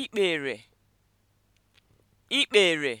ikpere ikpere